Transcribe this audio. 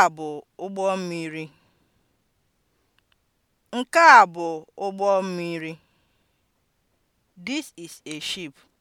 a bụ ụgbọ mmiri. Nke a bụ ụgbọ mmiri. This is a ship.